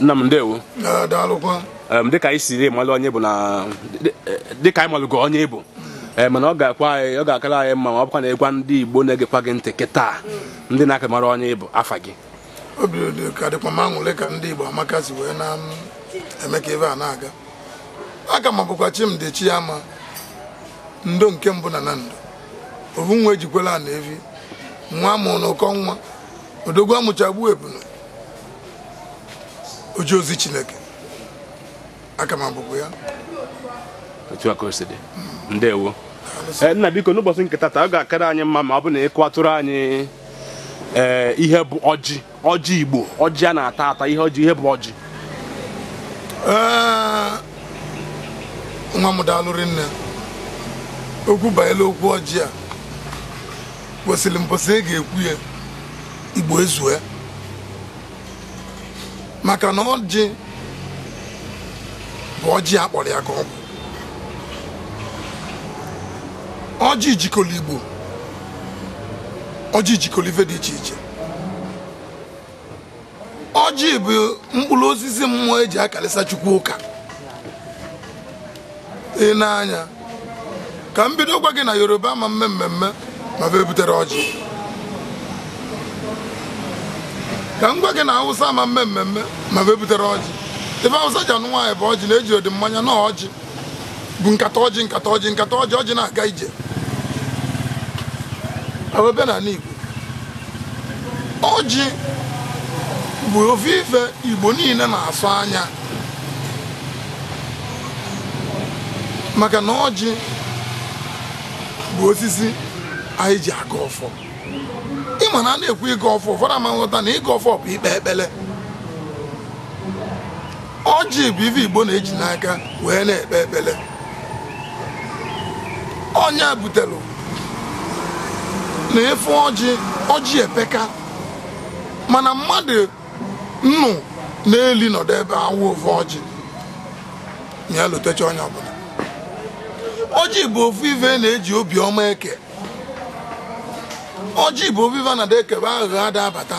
nna m ndewo dịka anyị siri malụ onye bụ na dịka anyị malụgo onye ịbụ mana ọ ga-akwa anyị ọ ga-akara anyị mma ma ọ bụkwa na ịgwa ndị Igbo na-egekwa gị ntị kịta ndị na-aka mara onye ịbụ afa gị obi dị ka dịkwa m aṅụrị ka ndị Igbo amaka si wee na-eme ka ebe a na-aga aga m abụkwa chi ama ndo nke mbụ na na ndo ovu nwa ejikwela na evi nwa mụrụ n'ụkọ nwa odogwu amụchagbu ebunu oji ozi Chineke aka m ya otu aka o si dị ndewo eh, nna biko n'ụbọchị nketa taa ọ ga-akara anyị mma ma ọ bụ na ịkụ atụrụ anyị eh, ihe bụ ọjị ọjị Igbo ọjị a na-ata ata ihe ọjị ihe bụ ọjị eh, nwa m daalụrị nne okwu banyere okwu ọjị a kwesịrị mposi ị e ga-ekwu ya Igbo ezue maka na ọjị bụ ọjị akpọrọ ya ka ọ bụ ọjị jikọrọ igbo ọjị jikọrọ ife dị iche iche ọjị bụ mkpụrụ osisi mmụọ eji akalịsa chukwu ụka ị na ka m bido gwa gị na yoruba ma mme mmemme ma bụ ebutere ọjị ka m gwa gị na awụsa ama mme mmemme ma wee butere ọjị ebe awụsa ji anụ nwaanyị bụ ọjị na-eji ụdị mmanya na ọjị bụ nkata ọjị nkata ọjị nkata ọjị ọjị na-aga ije awebe na ala ọjị bụ ofe ife Igbo niile na-asụ anya maka na ọjị bụ osisi anyị ji aga ọfọ Ị ma na a na-ekwu ịgọ ọfọ ụfọdụ ama nghọta na ịgọ ọfọ bụ ikpe ekpele ọjị bụ ife igbo na-eji n'aka wee na-ekpe ekpele ọnya butelụ na efe ọjị ọjị epeka mana mmadụ nnụ na-eli nọdụ ebe awụ ofe ọjị ọbụla ọjị bụ ofu ife na-eji obiọma eke ọjị bụ obiva na da ekebe aghụghọ ada abata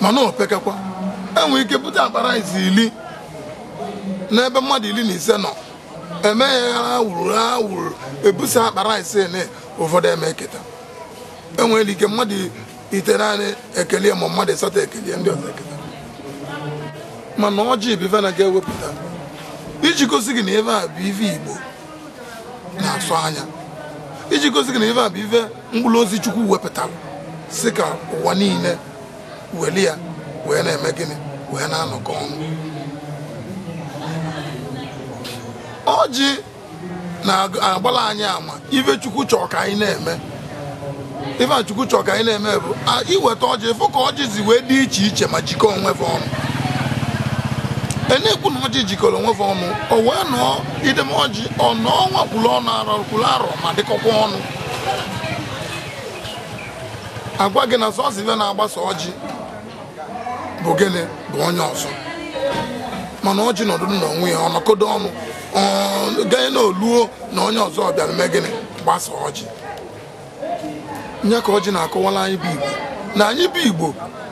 mana opekekwa enwere ike bute akpara izi ili n'ebe mmadụ iri na ise nọ eme ya ha wuru ha wuru ebusa akpara ise na ụfọdụ eme eketa enwere ike mmadụ ite naanị ekele ma mmadụ ịsatọ ekele ndị ọzọ eketa mana ọjị bụ na ga-ewepụta iji gosi gị na ife a bụ ife Igbo na-asụ anya iji gosi gị na ife a bụ ife mkpụrụ ozi chukwu wepụtara si ka ụwa niile weli ya wee na-eme gịnị wee na-anọkọ ọnụ ọjị na-agbala anyị ama ife chukwu chọọ ka anyị na-eme ife chukwu chọọ ka anyị na-eme bụ iweta ọjị fụ ka ọjị zi wee dị iche iche ma jikọọ onwe ọnụ na-ekwu na ọjị jikọrọ onwe ọnụ ọ wee nọọ idemoji ọnụ ọnwa kwuru ọnụ arọ kwuru arọ ma dịkọkwa ọnụ agwa gị na sọsọ na-agbasa ọjị bụ gịnị bụ onye ọzọ mana ọjị nọdụ n'onwe ya ọnọkodo ọnụ gaa na na onye ọzọ bịara mee gịnị gbasa ọjị nye ka ọjị na akọwala anyị bụ igbo na anyị bụ igbo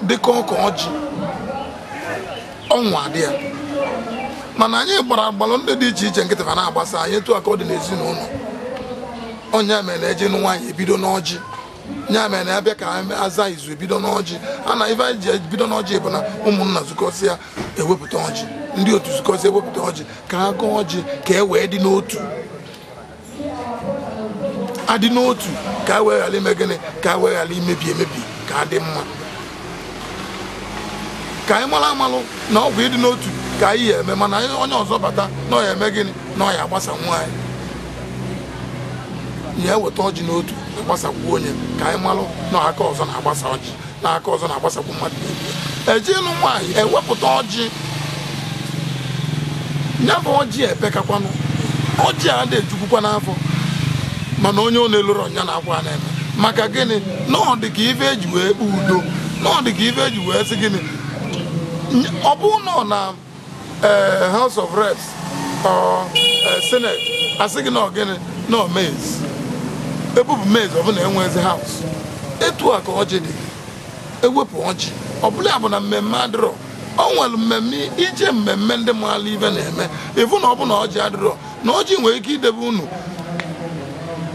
dịka ọka ọjị ọnwa dị ya mana anyị gbara agbalụ ndị dị iche iche nkịtị fa na-agbasa anyị etu aka ọ dị n'ezinụlọ onye mere eji nụ nwaanyị ebido n'ọjị nya mere na abịa ka aza izu ebido n'ọjị a na ife ji ebido n'ọjị bụ na ụmụnna zukọsịa ewepụta ọjị ndị otu zukọsịa ewepụta ọjị ka ha gụọ ọjị ka e wee dị n'otu adị n'otu ka a wee ghara ime gịnị ka a wee ghara imebi emebi ka adị mma ka anyị mara amalụ na ọgwụ ịdị n'otu ka anyị ya eme mana onye ọzọ bata na ọ eme gịnị na ọ agbasa nwaanyị ya eweta ọjị n'otu agbasakwu onye ka anyị malụ na aka ọzọ na-agbasa ọjị na aka ọzọ na-agbasakwu mmadụ ejielu nwaanyị ewepụta ọjị nyabụ ọjị epekakwanụ ọjị a dị ejukwukwa n'afọ mana onye ọ na-eloro ọnya na-akwa na-eme maka gịnị na ọ dị ka ife eji wee kpụ udo na ọ dị ka ife eji wee sị gịnị ọ bụ na ọ na Eh, house of reps or eh, senate asị gị na ọgịnị na omezi ebupụ mezi ọbụla enwezi house etu a ka ọjị dị ewepụ ọjị ọbụla ya bụ na mmemme adịrọ ọ nwere mmemme ije mmemme ndị mmadụ ibe na-eme ịfụ na ọ bụ na ọjị adịrọ na ọjị nwere ike idebe unu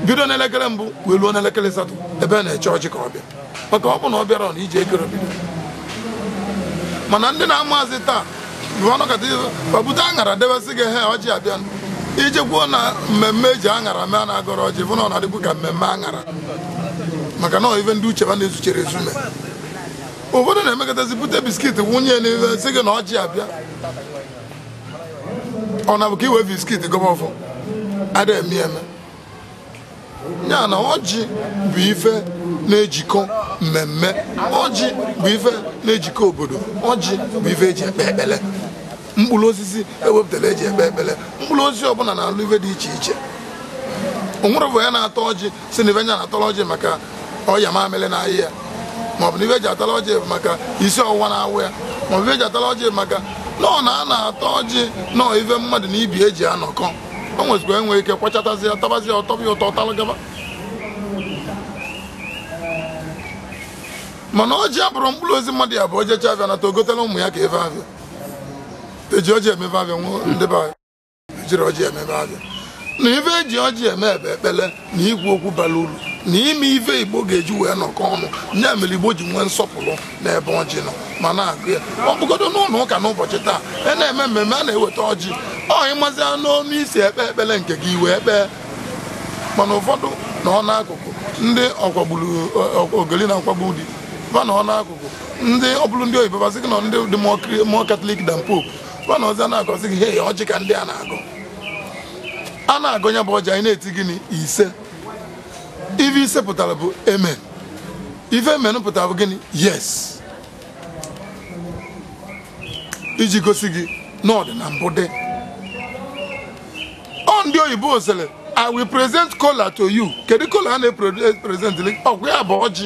bido n'elekere mbụ wee n'elekere satọ ebe na-eche ọjị ka ọ bịa maka ọ na ọ bịara na ije ekere bido mana ndị na-amazi taa ọ bute aṅara debesị gị he ọjị abịa iji kwuo na mmemme eji aṅara mee na agọrọ ọjị bụ na ọ na-adịkwu ka mmemme aṅara maka na ife ndị uche ba na-ezuchere ezume ụfọdụ na-emekọtazi bute biskit wunye n'ihe eh, sị gị na ọjị abịa ọ na bụ ka iwe biskit gọbọ ọfọ adịghị eme eme ya na ọjị bụ ife na-ejikọ mmemme ọjị bụ ife na-ejikọ obodo ọjị bụ ife eji ekpe ekpele mkpụrụ osisi ewepụtara eji ekpe ekpele mkpụrụ osisi ọbụla na-alụ ife dị iche iche onwere bụ ya na-atọ ọjị si na ife nya na-atọrọ ọjị maka ọya mamịrị na ahịa ya maọbụ na ife eji atara ọjị maka isi ọwụwa na-awụ ya maọbụ ife eji atara ọjị maka nọọ na a na-atọ ọjị nọọ ife mmadụ na ibi eji anọkọ o nwezikwa enwe ike kwachatazi ya tabazi ya ọtọbi ụtọ talụgaba mana ọjị abụrụ mkpụrụ ozi mmadụ ya bụ ojecha abịa nata ogotela ụmụ ya ka ebe abịa eji ọjị emebe abịa nwụọ ndị be ejiri ọjị emebe abịa na ife eji ọjị eme ebe ekpele na ikwu okwu bara uru na ime ife igbo ga-eji wee nọkọ ọnụ ya mere igbo ji nwee nsọpụrụ na ebe ọjị nọ ma na-agụ ya ọ bụgodo n'ụlọ ụka n'ụbọchị taa a e na-eme mmemme a na-eweta ọjị ọ ịmazia n'ọnụ isi ekpe ekpere nke gị wee kpee mana ụfọdụ na n'akụkụ ndị ọkwagburu ogeli na akwagbu di ba n'ọ n'akụkụ ndị ọbụrụ ndị oyibo basị gị na ndị dị mụọ katọlik dan pope ba na ọzọ na-agọzi gị hei ọjị ka ndị a na-agụ a na-agụ ya bụ ọjị anyị na-eti gịnị ise ife ise pụtara bụ eme ife emenụ pụtara bụ gịnị yes iji gosi gị na ọ mbụ dị ndị oyibo sịrị i will present kola to you kedu kola a na-epresent ọgwụ ya bụ ọjị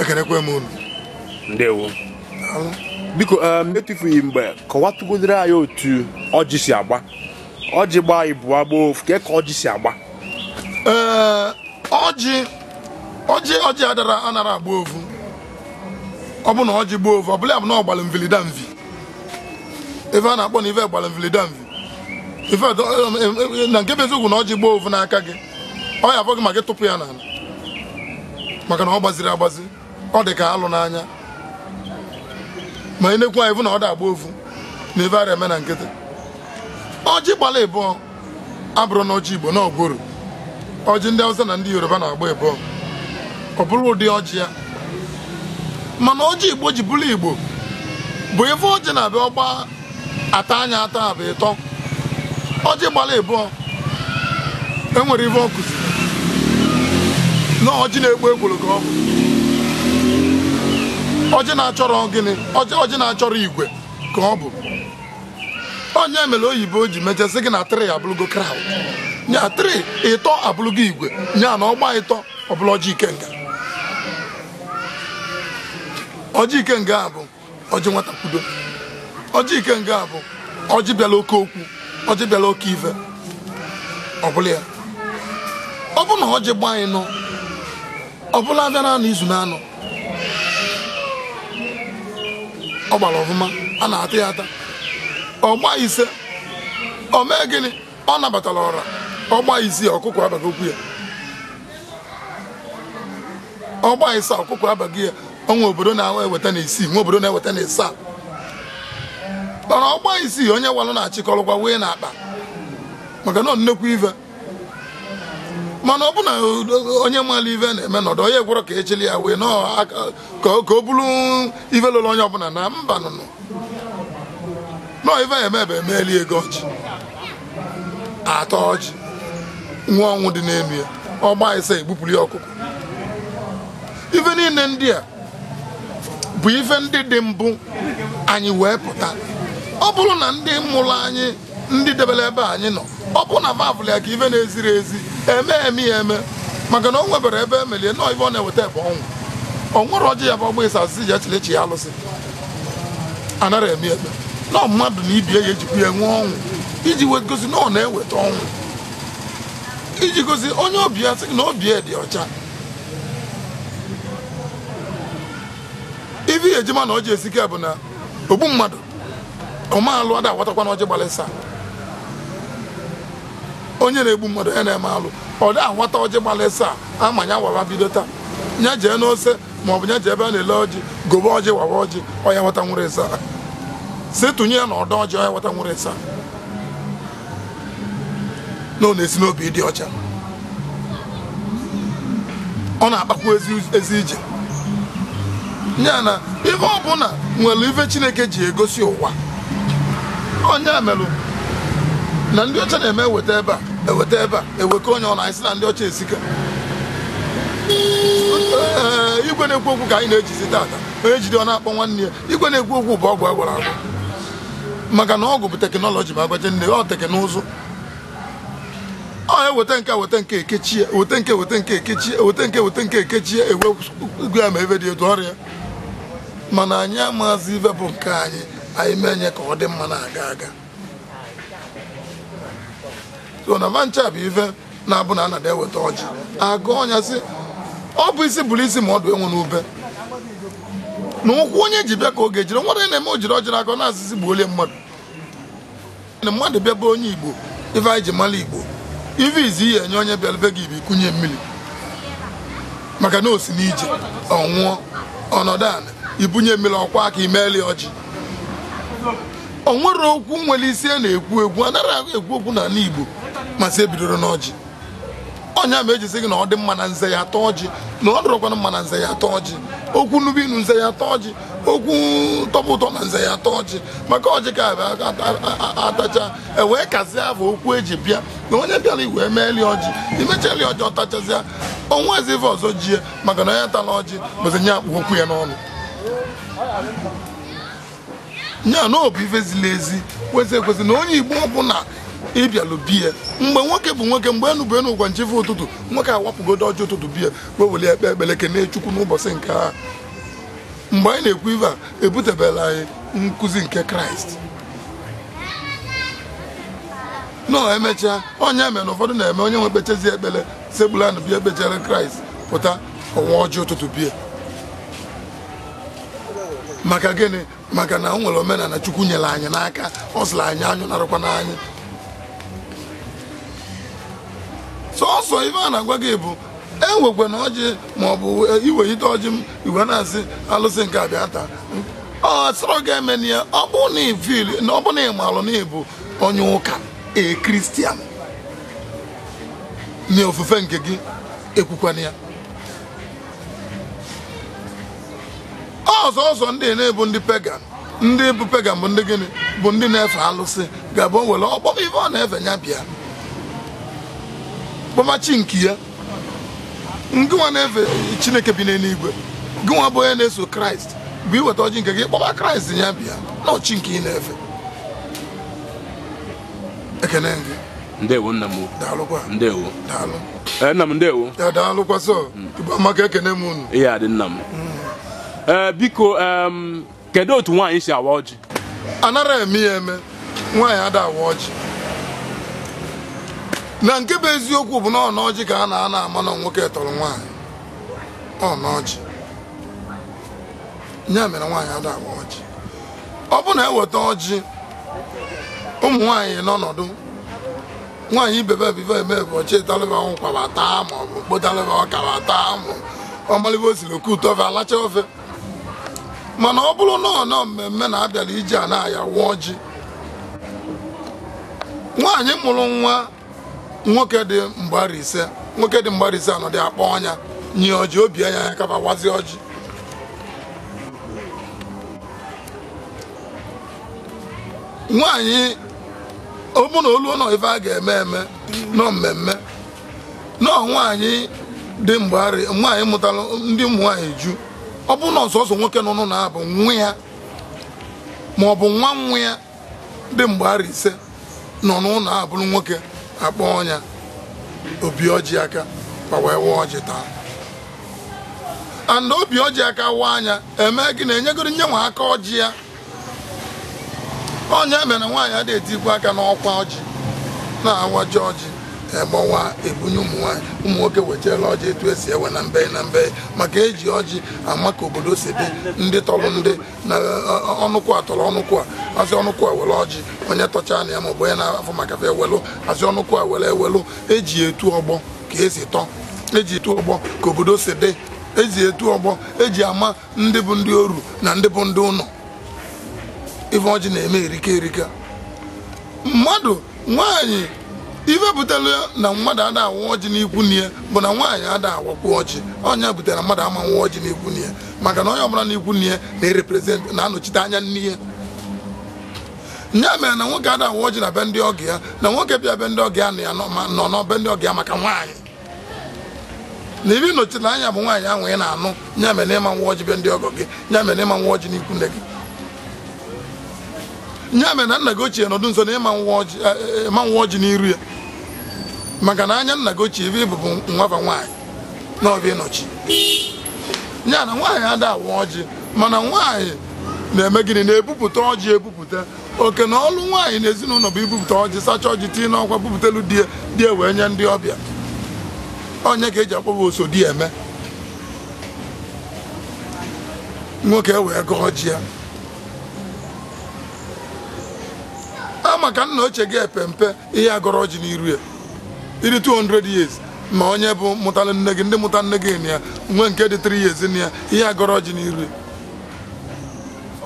ekenekwe m unu ndewo biko um, etufughị mgbe kọwatụgodoro anyị otu ọjị si agba ọjị gbaa ibu agba ofu ka ọjị si agba ee ọjị ọjị ọjị adara anara agba ofu ọ bụ na ọjị gbaa ofu ọ bụla ya bụ na ọ gbara mvilida mvi ebe a na-akpọ na ive gbara mvilida mvi ife um, um, um, na nke bụ eziokwu na ọjị gbaa ofu n'aka gị ọ ya afọ gị maka ya n'ala maka na ọ gbaziri agbazi ọ dị ka alụ n'anya ma ị n'ekwu ekwu anyị na ọ dị agba ofu na ife ara eme na nkịtị ọjị gbala ịbụọ abụrụ na ọjị igbo na ọjị ndị Hausa na ndị Yoruba na-agba ịbụọ ọ bụrụ ụdị ọjị ya mana ọjị igbo ji bụrụ igbo bụ ife ọjị na-abịa ọgba ata anya ata abụ ịtọ ọjị gbara ịbụọ enwere ife ọ kụziri na ọjị na-egbu egbologo ọgwụ ọjị na-achọrọ gịnị ọjị na-achọrọ igwe ka ọ bụ onye mere oyibo o ji mechasị gị na trị abụrụgo kraụd nya trị ịtọ abụrụgo igwe nya na ọgba ịtọ ọbụla ọjị ikenga ọjị ikenga a bụ ọjị nwata kwudo ọjị ikenga a bụ ọjị bịala oke okwu ọ dịbịala oke ife ọ bụla ya ọ bụ na ọ ji gbaa anyị nọ ọbụla abịa na anọ izu na anọ ọ gbara ọfụma a na-ata ya ata ọ gbaa ise o mee gịnị ọ nabatara ọra ọ gbaa isii ọkụkọ abaghị okwu ya ọ gbaa ise ọkụkọ abaghị ya ọnwa obodo na-eweta na isii nwa obodo na-eweta na isaa mana ọgba isii onye walụ na-achịkọrọkwa wee na akpa maka na nnekwu ive mana ọ bụ na onye mara ive na-eme nọdụ onye gwọrọ ka echili ya wee ka o bụrụ ive lụrụ onye ọbụla na mba nụnụ nọọ ive ya emebe emeeli ego ọchị atọ ọchị nwa ọnwụ dị n'elu ya ọgba ise egbupụrụ ya ọkụkọ ife niile ndị a bụ ife ndị dị mbụ anyị wee pụta ọ bụrụ na ndị mụrụ anyị ndị debere ebe anyị nọ ọ bụrụ na vavụl ya ka ife na-eziri ezi eme eme ya eme maka na o nwebere ebe emelie nọọ ife ọ na-eweta ebe ọnwụ ọ nwere ọjị ya bụ ọgba ịsa asịsị ji echile ya alụsị anara eme eme nọọ mmadụ na ibie ya ejikwa ya nwee ọnwụ iji gosi na ọ na-eweta ọnwụ iji gosi onye obi ya sị na obi ya dị ọcha ife ya ejima na ọjị esike bụ na ogbu mmadụ ọmaalụ ada agwatakwa na ọjị gbalịsa onye na-egbu mmadụ onye na-eme alụ ọ dị aghọta ọjị gbalịsa ama ya wawa bido taa ya jee n'ose bụ ya jee ebe a na-ele ọjị gobe ọjị wawa ọjị ọya nweta nwere ịsa si tụnye ya na ọdọ ọjị ọya nweta nwere ịsa na ọ na-esi n'obi dị ọcha ọ na-akpakwu ezi ije nya na ihe ọbụla nwere ife Chineke ji egosi ụwa onye melụ na ndị ọcha na-eme eweta ebe a eweta ebe a ewekọ onye ọ na-esi na ndị ọcha esika eh, igwe na-ekwu okwu ka anyị na-ejizi tata onye jide ọ na-akpọ nwanne ya igwe na-ekwu okwu bụ ọgwụ agwara agwa maka na ọgwụ bụ teknọlọji ma agbaje nne ọ teknụzụ ọ eweta nke weta nke ekechie weta nke weta nke ekechie weta nke weta nke ewe ya ma ebe dị etu ọrịa mana anyị amazi ive bụ nke anyị anyị mee nye ka ọ dị mma na-aga aga so na vancha bụ ife na-abụ na anada eweta ọjị agụ ọnya ọ bụ isi bụrụ isi ma ọdụ enwe n'ube na ụkwụ onye ji bịa ka oge ejiri nwa na-eme o jiri ọjị n'aka na-asịsị gbuolie mmadụ na mmadụ bịa bụ onye igbo ife anyị ji mara igbo ife izi ihe enye onye bịara gị ibi ikunye mmiri maka na o si n'ije ọ nwụọ ọnọdụ ana ibunye mmiri ọkwa aka imeeli ọjị o nwere okwu nwere isi a na-ekwu egwu anaghị ekwu okwu n'ala Igbo masị ebidoro n'ọjị ọnya ma ejisi gị na ọ dị mma na nze ya atọ ọjị na ọ dụrọkwana mma na nze ya atọ ọjị okwu nnubu inu nze ya atọ ọjị okwu tọpụ ụtọ na nze ya atọ ọjị maka ọjị ka atacha ewee kazie afọ okwu eji bịa na onye bịara igwe eme eli ọjị imecha eli ọjị ọtachazịa ọnwa ezive ọzọ jie maka na onye tala ọjị bụzi nye akpụ okwu ya n'ọnụ nya na ọbụ ife zili ezi kwesị ekwesị na onye igbo ọbụla ịbịalụ biya mgbe nwoke bụ nwoke mgbe enu bụ enu ụgwa nchefu ụtụtụ nwoke awapụgodo ọjọ ụtụtụ biya wee weli ekpe ekpere kene chukwu n'ụbọchị nke ha mgbe anyị na-ekwu ife a ebutebela anyị nkụzi nke kraịst nọ emechaa onye mere na ụfọdụ na-eme onye nwe ekpechezi ekpele segbula anụ bịa ekpechere kraịst pụta ọnwa ọjọọ ụtụtụ biya maka gịnị maka na o nwere omenala chukwu nyere anyị n'aka ọ sịrị anyị anyụ narụkwa n'anyị sọsọ ife a na-agwa gị bụ enwekwa na ọjị ma ọ bụ e, ọjị m igwe na-asị alụsị nke abịa taa ọ sọrọ ga-eme ya ọ bụ na ifil na ọ bụ na ịmalụ na ịbụ onye ụka e kristian na ofufe nke gị ekwukwana ya ọzọ ọzọ ndị na-ebu ndị pegan ndị bụ pegan bụ ndị gịnị bụ ndị na-efe alụsị ga-abụ nwere ọkpọ ife ọ na-efe ya bịa kpọmachi nke ya ndị nwa na-efe chineke bi n'eluigwe gị nwa bụ onye na-eso kraịst bụ iweta ọjị nke gị kpọba kraịst ya bịa na ọchị nke ị na-efe ekene gị ndewo nna m daalụkwa ndewo daalụ eh, nna m ndewo daalụkwa sọ igbe hmm. amaka ekene m unu ihe adị nna m hmm. Eh, biko kedu otu nwaanyị si awa ọjị anara eme ya eme nwaanyị ada awa ọjị na nke bụ eziokwu bụ na ọna ọjị ka a na ana ama na nwoke tọrọ nwaanyị ọna ọjị ya mere nwaanyị ada awa ọjị ọ bụ na eweta ọjị ụmụ nwaanyị n'ọnọdụ nwaanyị ibebe ebibe eme bụ ọchị talịba nkwaba taa ma ọ bụ mkpotalịba ọkara taa ma ọmalịba osiri oke ụtọ ofe alacha ofe mana ọ bụrụ na ọnọ mmemme na abịara ije a na-aya wụọ ji nwaanyị mụrụ nwa nwoke dị mgbari ise nwoke dị mgbari ise anọ dị akpọ ọnya nye ọjị obi anya ya kaba wazi ọjị nwaanyị ọ bụ na oluo nọ ife a ga-eme eme nọ mmemme nọ nwaanyị dị mgbari nwaanyị mụtara ndị ụmụ nwaanyị ju ọ bụrụ na ọsọsọ nwoke nọ n'ụlọ ya bụ nwa ya ma ọ bụ nwa nwa ya dị mgbe ise nọ n'ụlọ a bụrụ nwoke akpọ ọnyá obi ọjị aka wee wụọ ọjị taa and obi ọjị aka wa anya eme gị na-enyegoro nye nwa aka ọjị ya ọnya mere nwaanyị adịghị etikwa aka n'ọkwa ọjị na-awaji ọjị gbawa ebunye ụmụnwaanyị ụmụ nwoke wechara ọjị etu esi ewe na mbe na mbe maka eji ọjị ama ka obodo si dị ndị tọrọ ndị na e, e, e, ọnụkwụ a tọrọ ọnụkwụ a azị ọnụkwụ a were ọjị onye tọcha na ya ọbụ onye na-afọ maka fe ewelụ azị ọnụkwụ a were ewelụ eji etu ọgbọ ka esi tọ eji etu ọgbọ ka obodo si dị eji etu ọgbọ eji ama ndị bụ ndị oru na ndị bụ ndị ụnọ ife ọjị na-eme erike erika mmadụ nwaanyị ife na mmadụ ada awụ ọjị n'ikwu na bụ na nwaanyị ada awakwu ọjị ọnya butere na mmadụ ama nwa ọjị n'ikwu na maka na onye ọbụla n'ikwu na ya na-ereprezentị na-anọchite anya nne ya ya mere na nwoke ada awụ ọjị na be ndị ọgọ ya na nwoke bịa be ndị ọgọ ya na ya nọ n'ọbe ndị ọgọ ya maka nwaanyị na ibe nọchite anya bụ nwaanyị ahụ ị na-anụ ya mere na ịma nwa ọjị be ndị ọgọ gị ya mere na ịma nwa ọjị n'ikwu nne gị ya mere na nna gị ochie nọdụ nso na ịma nwa eh, eh, ọjị n'iru ya maka na anya nna gị ochie ebe ịbụbụ nwaba nwaanyị na ọbịa ịnọchi nya na nwaanyị ada awa ọjị mana nwaanyị na-eme gịnị na-ebupụta ọjị ebupụta oke na ọlụ nwaanyị na ezinụlọ bụ ibupụta ọjị sacha ọjị tii n'ọkwa bupụtalu di die wee nye ndị ọbịa onye ka eji akpọba oso di eme nwoke wee gụọ ọjị ya a maka nna ochie gị epempe ihe agọrọ ọjị n'iru ya ịdị 200 years ma onye bụ mụtara nne gị ndị mụta nne gị ya nwee nke dị 3 years na ya ihe agọrọ ji n'iri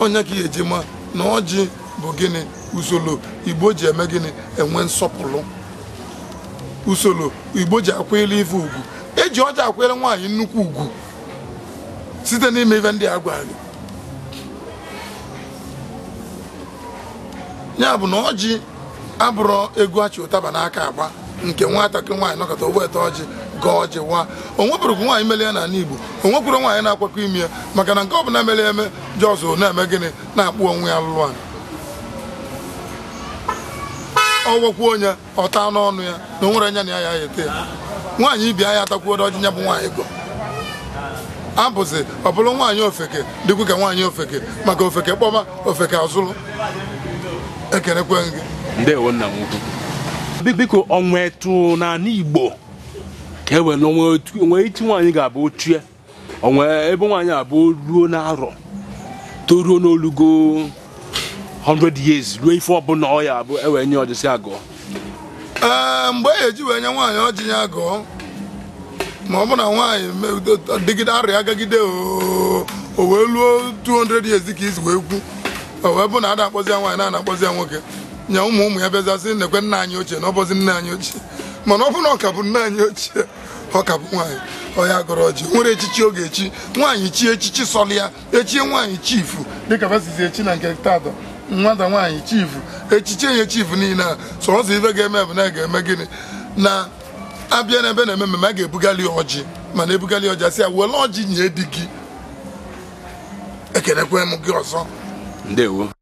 onye ka ji ma na ọjị bụ gịnị usoro igbo ji eme gịnị enwe nsọpụrụ usoro igbo ji akwanyere ife ugwu eji ọjị akwanyere nwaanyị nnukwu ugwu site n'ime ife ndị a gwara gị ya bụ na ọjị abụrọ ego achị ụtaba n'aka agba nke nwatakịrị nwaanyị nọkọta ogbe ete ọjị gaa ọjị nwa onwepụrụkwu nwaanyị mele ya n'ala Igbo onwekwuru nwaanyị na-akwakọ ime ya maka na nke ọbụla mere eme jọzụ na-eme gịnị na-akpụ onwe ya lụrụ alụ ọgwọkwuo onye ọta n'ọnụ ya na onwere nwere anya na ya ya ete ya nwaanyị ibi anya atakwuodo ọjị ya bụ nwaanyị gọ abụzi ọ bụrụ nwaanyị ofeke dịkwu ka nwaanyị ofeke maka ofeke kpọma ofeke azụlụ ekenekwe gị ndewo nna m ukwu biko onwe etu n'ala Igbo ka e were onwe iti nwaanyị ga-abụ ochie onwe ebe nwaanyị abụ ruo n'arọ toruo n'olugo 100 years ruo ife ọbụla ọ ya abụ ewee nye ọjịsị agụọ ee mgbe e ji wee nye nwaanyị ọjị ya agụọ ma ọ bụ na nwaanyị dịgide arịa agagide o wee luo 200 years ka izu wee kwu o wee bụ na a na-akpọzi ya nwaanyị na-akpọzi ya nwoke nye ụmụ ụmụ ya bịazasị nekwe nna anyị ochie na ọbọzi nna anyị ochie mana ọ bụrụ na ọ ka bụ nne anyị ochie ọ ka bụ nwaanyị ọya gọrọ ọjị nwere echichi oge echi nwaanyị chi echichi sọlụ ya echie nwaanyị chifu dịka basizi echi na nke taatọ nwata nwaanyị chifu echichi enye chifu niile a sọọsọ ife ga-eme bụ na a ga-eme gịnị na abịa n'ebe na-eme mmemme a ga-ebugali ọjị mana ebugali ọjị asị ya were ọjị nye di gị ekenekwe m gị ọzọ ndewo